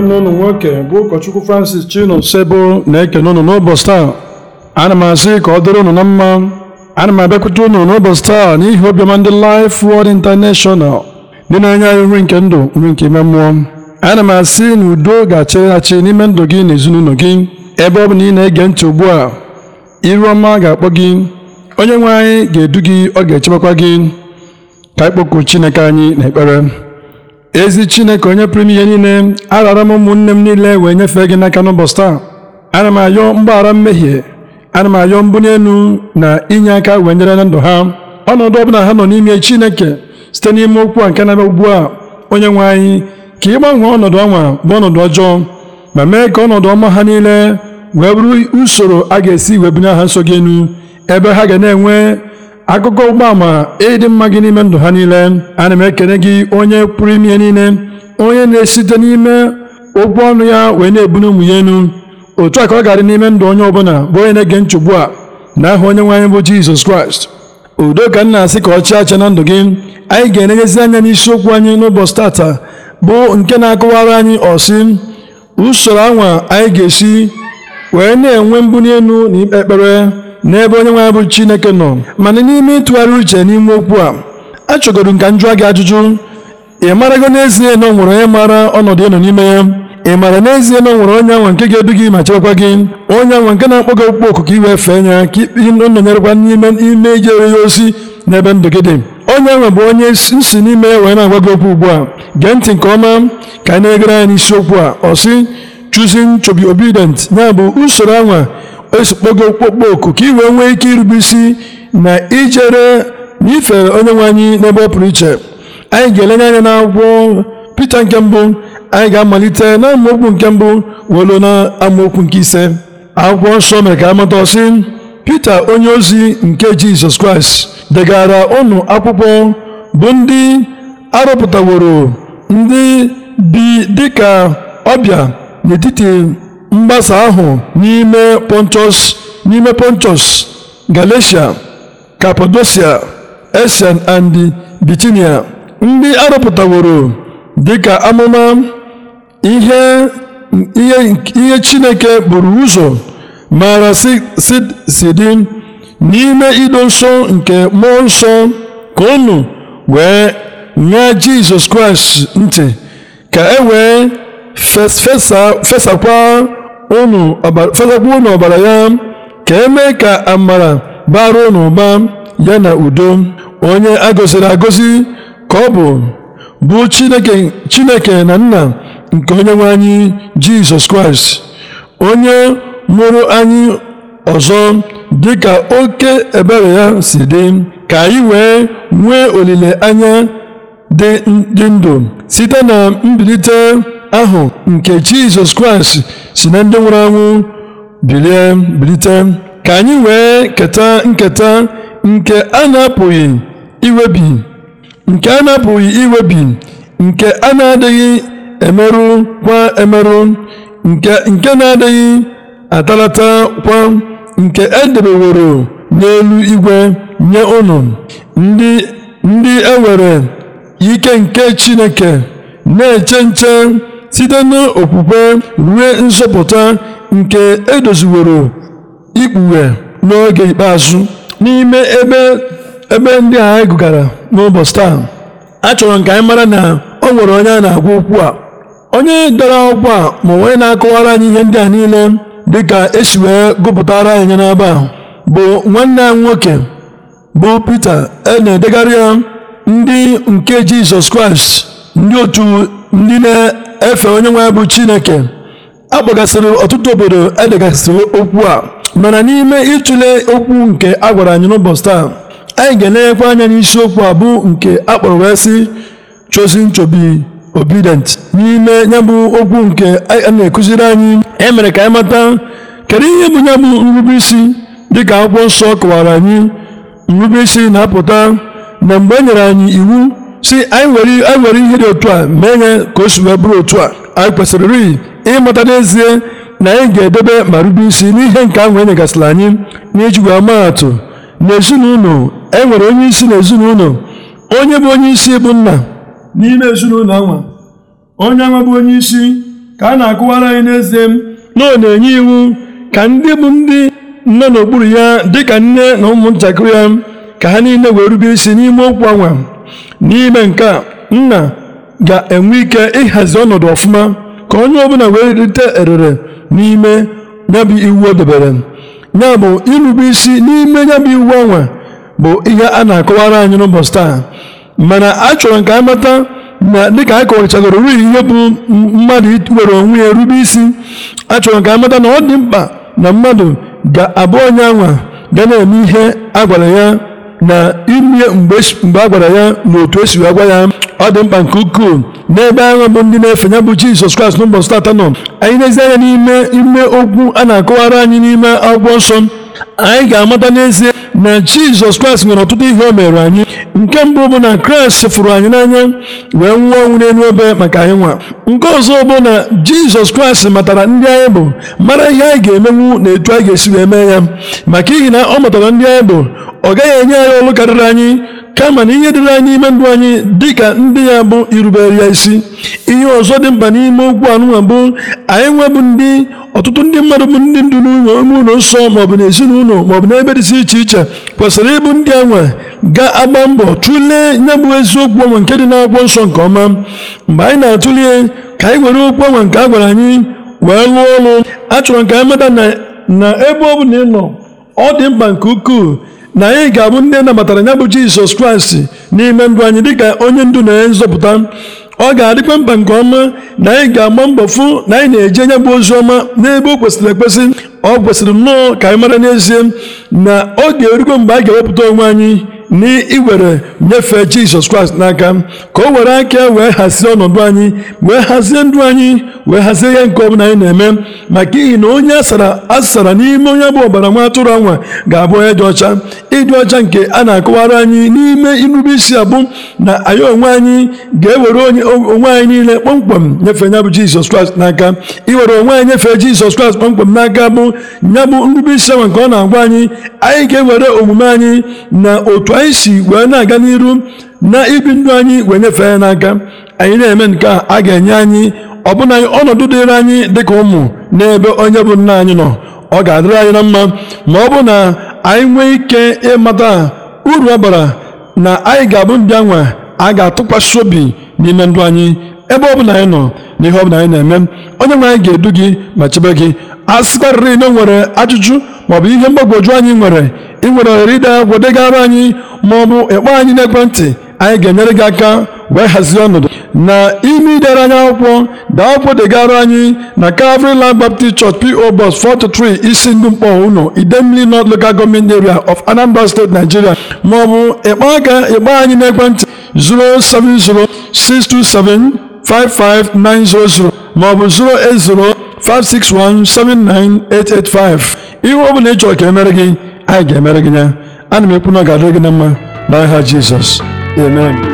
nwanne unu nwoke eh, bụ ụkọchukwu Francis sebo na-ekene unu n'ụbọchị taa ana m asị ka ọ dịrị unu na mma ana m abịakwute unu n'ụbọchị taa n'ihi obiọma ndị Life Word International ndị na-enye anyị nri nke ndụ nri nke ime mmụọ ana m asị na udo ga-achịrị achị n'ime ndụ gị na ezinụlọ gị ebe ọ bụ na ị na-ege ntị ugbu a iru ọma ga-akpọ gị onye nwe anyị ga-edu gị ọ ga-echebekwa gị ka ịkpọku Chineke anyị na ekpere ezi chineke onye pụrụ ihe niile arara m ụmụnne m niile wee nyefee gị n'aka n'ụbọchị taa ana m ayọ mgbaghara mmehie ana m ayọ mbunye elu na inye aka wee nyere na ndụ ha ọnọdụ ọbụla ha nọ n'ime chineke site n'ime okwu a nke na ugbu a onye nwe anyị ka ị ọnọdụ ọnwa bụ ọnọdụ ọjọọ ma mee ka ọnọdụ ọma ha niile wee bụrụ usoro a ga-esi wee bunye ha nso gị enu ebe ha ga na-enwe akụkọ ụgbọama ịdị mma gị n'ime ndụ ha niile ana m ekene gị onye pụrụ ime niile onye na-esite n'ime okwu ọnụ ya wee na ebunye ụmụ ya enu otu a ka ọ adị n'ime ndụ onye ọbụla bụ onye na-ege nchegbu a na aha onye nwe anyị bụ Jizọs Kraịst udo ka m na-asị ka ọ chịa achị na ndụ gị anyị ga-enenyezi anya n'isiokwu anyị n'ụbọchị tata bụ nke na-akọwara anyị ọsị usoro anwa anyị ga-esi wee na-enwe mbuli elu na ikpe ekpere n'ebe onye nwe anyị bụ Chineke nọ mana n'ime ịtụgharị uche n'ime okwu a achọgoro ka m gị ajụjụ ị marago n'ezie na ọ nwere onye mara ọnọdụ ịnọ n'ime ya ị maara n'ezie na ọ nwere onye anwa nke ga-edu gị ma chekwa gị onye anwa nke na-akpọ gị okpukpe oku ka iwee fee ya ka ikpe nọnyerekwa n'ime ime ijere ya ozi n'ebe ndụ gị dị onye nwa bụ onye nsi n'ime ya wee na-agwa gị okwu ugbu a gee ntị nke ọma ka anyị na-egere anyị n'isiokwu a ọ sị choosing to obedient ya bụ usoro anwa esokpo gị okpokpo oku ka i wee nwee ike irube isi na ijere na ife onye nwe anyị n'ebe ọ pụrụ iche anyị ga-elenye anya na akwụkwọ Pita nke mbụ anyị ga-amalite na amaokwu nke mbụ welu na amaokwu nke ise akwụkwọ nsọ mere ka amata ọsị Pita onye ozi nke Jizọs Kraịst degara ụnụ akwụkwọ bụ ndị arụpụtaworo ndị bi dịka ọbịa n'etiti mgbasa ahụ n'ime pontus n'ime pontus galatia kapadosia esian and bitinia ndị arụpụtaworo dịka amụma ihe chineke buru ụzọ maara si n'ime ido nsọ nke mmụọ nsọ ka unu wee nye jizọs kraịst ntị ka e wee fesakwa fesakwa unu ọbara ya ka emee ka amara bara unu ụba ya na udo onye agọziri agosi ka ọ bụ bụ chineke na nna nke onye nwe anyị jizọs kraịst onye mụrụ anyị ọzọ dịka oke ebere ya si dị ka anyị wee nwee olileanya dị ndụ site na mbilite ahụ nke Jizọs Kraịst si na ndị nwụrụ anwụ bilie bilite ka anyị wee keta nketa nke a na-apụghị iwebi nke a na-apụghị iwebi nke a na-adịghị emerụ kwa emerụ nke na-adịghị atalata kwa nke edebeworo n'elu igwe nye ụnụ ndị ndị e nwere ike nke Chineke na-eche nche site n'okwukwe ruo nzọpụta nke edoziworo ikpughe n'oge ikpeazụ n'ime ebe ebe ndị a anyị gụgara n'ụbọchị taa achọrọ nke anyị mara na o nwere onye a na-agwa okwu a onye dara akwụkwọ a ma onye na-akọwara anyị ihe ndị a niile dịka esi wee gụpụtara anyị n'ebe a bụ nwanne anyị nwoke bụ Pita e na-edegharị ya ndị nke Jizọs Kraịst ndị otu ndị na efe onye nwe bụ Chineke akpọgasịrị ọtụtụ obodo edegasịrị okwu a mana n'ime ịtụle okwu nke a gwara anyị n'ụbọchị taa anyị ga-elenyekwa anya okwu a bụ nke akpọrọ wee sị chosen to obedient n'ime ya okwu nke a na-ekụziri anyị emere ka anyị mata kedu ihe bụ ya bụ nrube isi dịka akwụkwọ nsọ kọwara anyị nrubeisi isi na-apụta na mgbe e nyere anyị iwu si anyị were ihe dị otu a mee ihe ka o si wee bụrụ otu a anyị kwesịrị rịị ịmụta n'ezie na anyị ga-edebe ma rube isi n'ihe nke ahụ e nyegasịrị anyị n'iji wee maa atụ n'ezinụlọ e nwere onye isi n'ezinụlọ onye bụ onye isi bụ nna n'ime ezinụlọ anwa onye anwa bụ onye isi ka a na-akụwara anyị n'ezie na ọ na-enye iwu ka ndị bụ ndị nọ n'okpuru ya dịka nne na ụmụntakịrị ya ka ha niile wee rube isi n'ime okwu anwa n'ime nke a nna ga-enwe ike ịhazi ọnọdụ ọfụma ka onye ọbụla wee rite erere n'ime ya iwu o debere ya bụ irube isi n'ime ya iwu anwa bụ ihe a na-akọwara anyị n'ụbọchị taa mana a chọrọ ka a mata na dịka a kọwachagoro ruhi ihe bụ mmadụ were onwe ya rube isi a chọrọ ka a mata na ọ dị mkpa na mmadụ ga-abụ onye anwa ga na-eme ihe a gwara ya na ime mgbe a gwara ya n'otu otu esi wee ya ọ dị mkpa nke ukwuu n'ebe ahụ bụ ndị na-efe ya bụ Jizọs Kraịst n'ụbọchị tata nọ anyị na-ezi anya n'ime ime okwu a na-akọwara anyị n'ime akwụkwọ nsọ anyị ga-amata n'ezie na jizọs kraịst nwere ọtụtụ ihe o mere anyị nke mbụ bụ na kraịst fụrụ anyị n'anya wee nwụọ ọnwụ n'elu ebe maka anyị nwa nke ọzọ bụ na jizọs kraịst matara ndị anyị bụ mara ihe anyị ga-emenwu na etu anyị ga-esi wee mee ya maka ihi na ọ matara ndị anyị bụ ọ gaghị enye anyị ọlụ karịrị anyị kama na ihe dịrị anyị ime ndụ anyị dịka ndị ya bụ irubere ya isi ihe ọzọ dị mkpa n'ime okwu anụnwa bụ anyị nwebụ ndị ọtụtụ ndị mmadụ bụ ndị ndụ n'ụlọ ime ụlọ nsọ maọbụ n'ezinụlọ maọbụ n'ebe dịsị iche iche kwesịrị ịbụ ndị anwa ga-agba mbọ tụlee ya bụ eziokwu ọnwa nke dị n'akwụkwọ nsọ nke ọma mgbe anyị na-atụle ka anyị were okwu ọnwa nke a gwara anyị wee lụọ ọrụ achọrọ ka anyị mata na ebe ọ bụla ị nọ ọ dị mkpa nke ukwuu na anyị ga-abụ ndị e nabatara ya bụ jizọs kraịst n'ime ndụ anyị dịka onye ndu na onye nzọpụta ọ ga-adịkwa mkpa nke ọma na anyị ga-agba mbọ fụ na anyị na-eje anya bụ ozi ọma n'ebe o kwesịrị ekwesị ọ kwesịrị nnọọ ka anyị mara n'ezie na ọ ga-erukwa mgbe anyị ga-ewepụta onwe anyị iwere nyefee jizọs kraịst n'aka ka o were aka wee hazie ọnọdụ anyị wee hazie ndụ anyị wee hazie ihe nke ọbụla anyị na-eme maka ihi na onye asara n'ime onye bụ ọbara nwa atụrụ anwa ga-abụ onye dị ọcha ịdị ọcha nke a na-akọwara anyị n'ime irube isi abụ na anyị onwe anyị ga-ewere onwe anyị niile kpọmkwem nyefee ya bụ jizọs kraịst n'aka iwere onwe anyị nyefee jizọs kraịst kpọmkwem n'aka bụ ya bụ nrube isi anwa nke ọ na-agwa anyị anyị ga-ewere omume anyị na otu anyị si wee na-aga n'iru na ibi ndụ anyị wee nyefee ya n'aka anyị na-eme nke a a ga-enye anyị ọbụna ọnọdụ dịrị anyị ka ụmụ n'ebe onye bụ nna anyị nọ ọ ga-adịrị anyị na mma ma ọ bụ na anyị nwee ike ịmata uru ọ bara na anyị ga-abụ ndị anwa a ga-atụkwasị obi n'ime ndụ anyị ebe ọ bụla anyị nọ na ihe ọ anyị na-eme onye nwe anyị ga-edu gị ma chebe gị a sịkwarịrị na nwere ajụjụ maọbụ ihe mgbagwoju anyị nwere ị nwere ohere ide akwụkwọ degara anyị maọbụ ịkpọ anyị n'ekwentị anyị ga-enyere gị aka wee hazie ọnọdụ na ime idere anyị akwụkwọ da akwụkwọ degara anyị na Calvary Land Baptist Church PO Box 43 isi ndụ mkpọ ụlọ Idemili North Local Gọọmenti Area of Anambra State Nigeria maọbụ ịkpọ aka ịkpọ anyị n'ekwentị 070 627 55900 maọbụ 080 5617985 ihe ọ bụla ị chọrọ ka emere gị anyị ga-emere gị ya ana m ekwu na ọ ga-adịrị gị na mma n'aha Jizọs amen